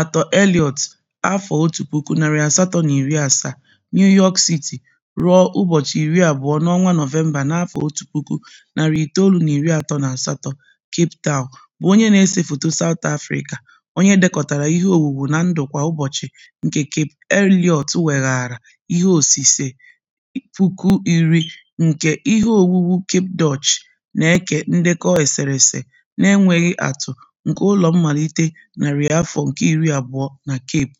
atọ Elliot afọ otu puku narị asatọ na iri asaa, New York City, ruo ụbọchị iri abụọ n'ọnwa Nọvemba n'afọ otu puku narị itoolu na iri atọ na asatọ, Cape Town, bụ onye na-ese foto South Africa onye dekọtara ihe owuwu na ndụ kwa ụbọchị nke Cape Elliot weghaara ihe osise puku iri nke ihe owuwu Cape Dutch, na-eke ndekọ eserese na-enweghị atụ. nke ụlọ mmalite narị afọ nke iri abụọ na Cape.